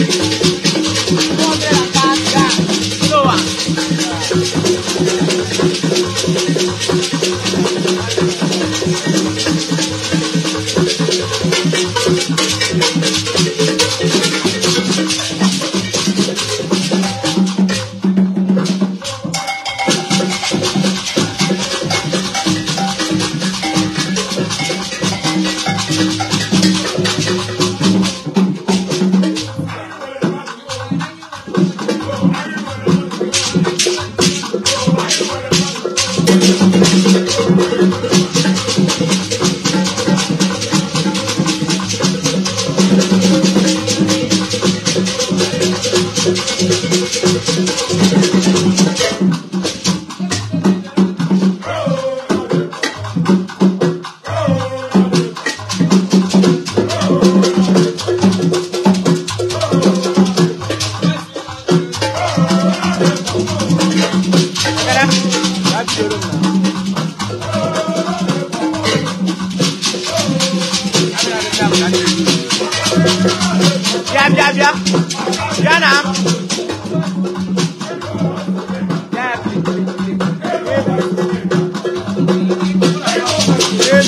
Thank you.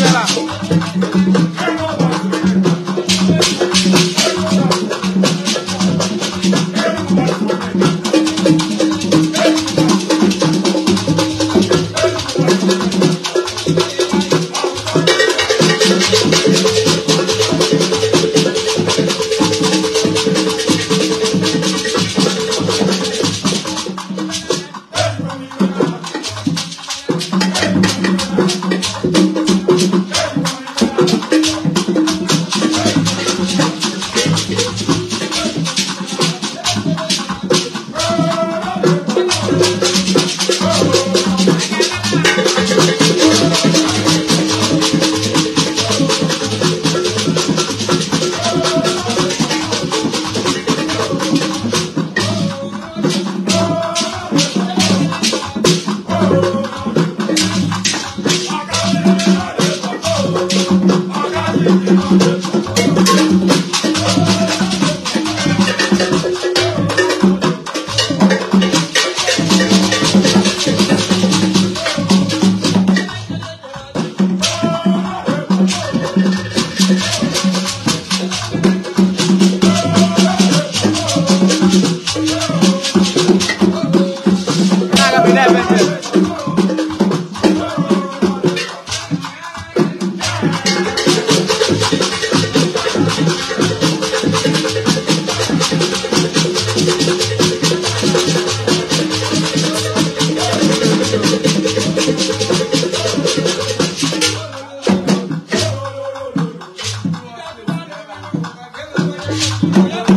Angela. Obrigado.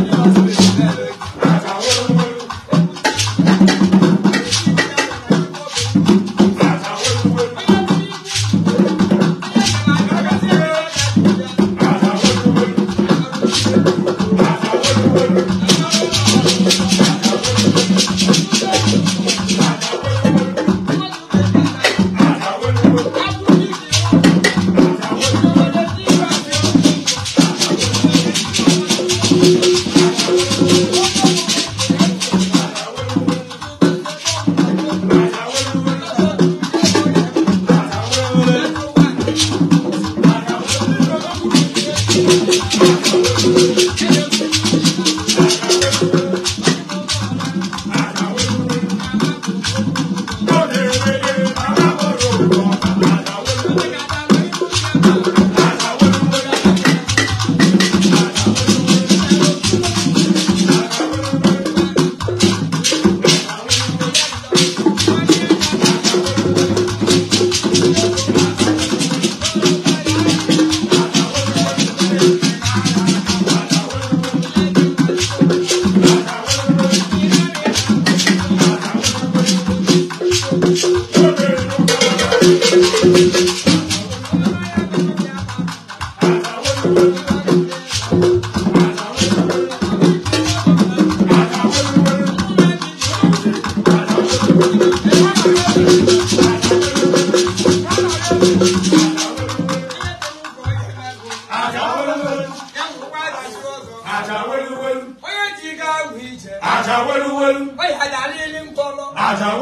aja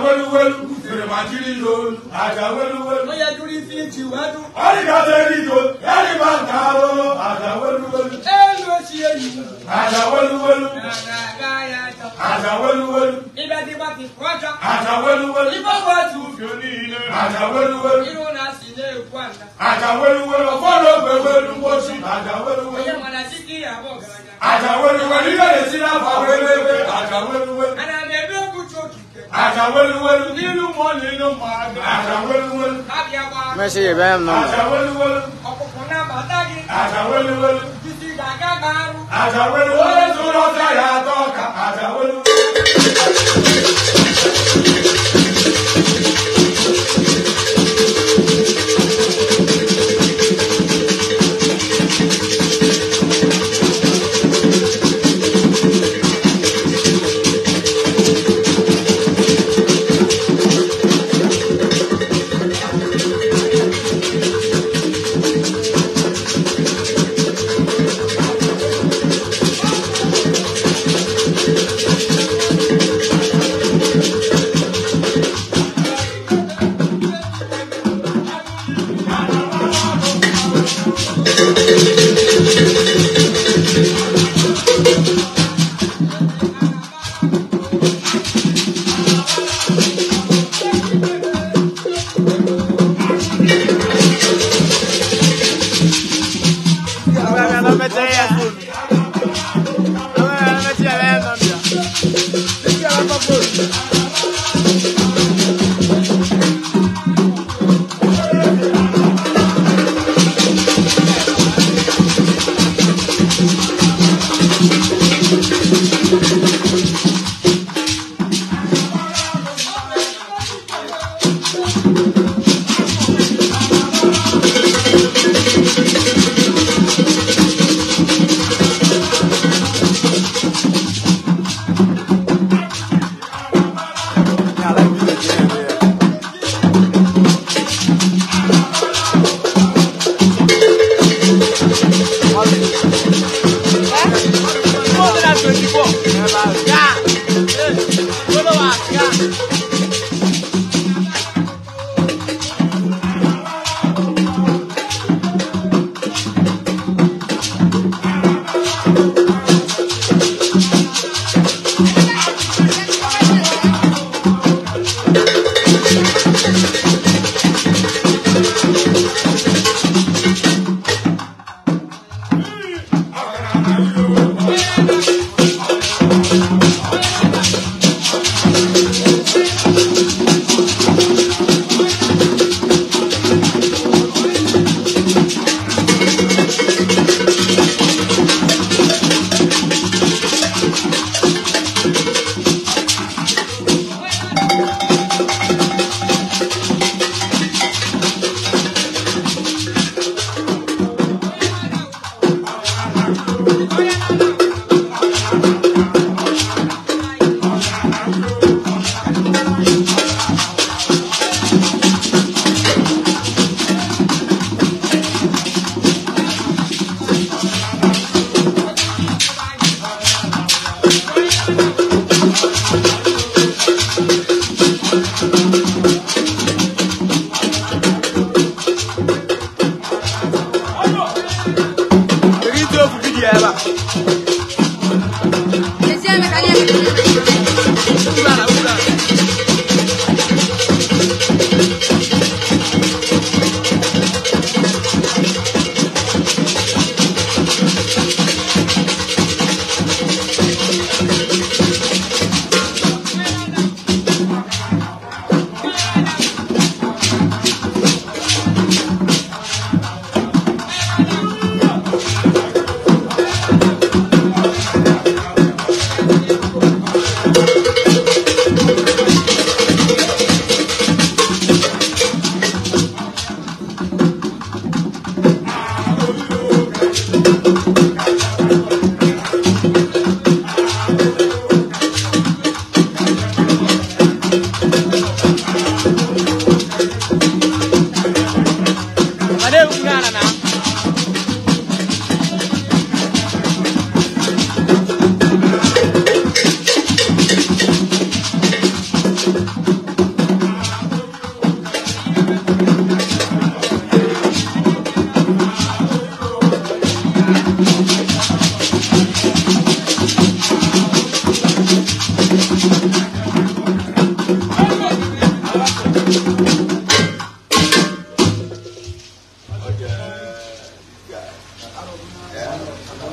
weluwelu Tirimatirilo, Ajawelewelu. Oya duri fi tiwadu. Alikaterito, Yalibantaro, Ajawelewelu. Elo siyelu. Ajawelewelu. Adagayata. Ajawelewelu. Ibadi bati kwaja. Ajawelewelu. Ibobo atu fionile. Ajawelewelu. Iruna sile kwanda. Ajawelewelu. Ọ̀fọ́lọ́ gbẹ̀wẹ̀lú mọ́sí. Ajawelewelu. Oya mọ̀nà sí kí àbọ̀ gàdá. Ajawelewelu. Ilé ìsirà fàwẹ́lẹ́wẹ́. Ajawelewelu. Ada Àṣàwẹ́lúwẹ́lú nínú wọn nínú màgá. Àṣàwẹ́lúwẹ́lú. Ábíyáwá. Mẹ́sì yìí bẹ́ẹ̀ nù. Àṣàwẹ́lúwẹ́lú. Ọkùnkùn náà bàtàgì. Àṣàwẹ́lúwẹ́lú. Títí gàgá gbàrú. Àṣàwẹ́lúwẹ́lú tó lọ́ọ́ sáyà tọ́ka. Àṣàwẹ́lúwẹ́lú.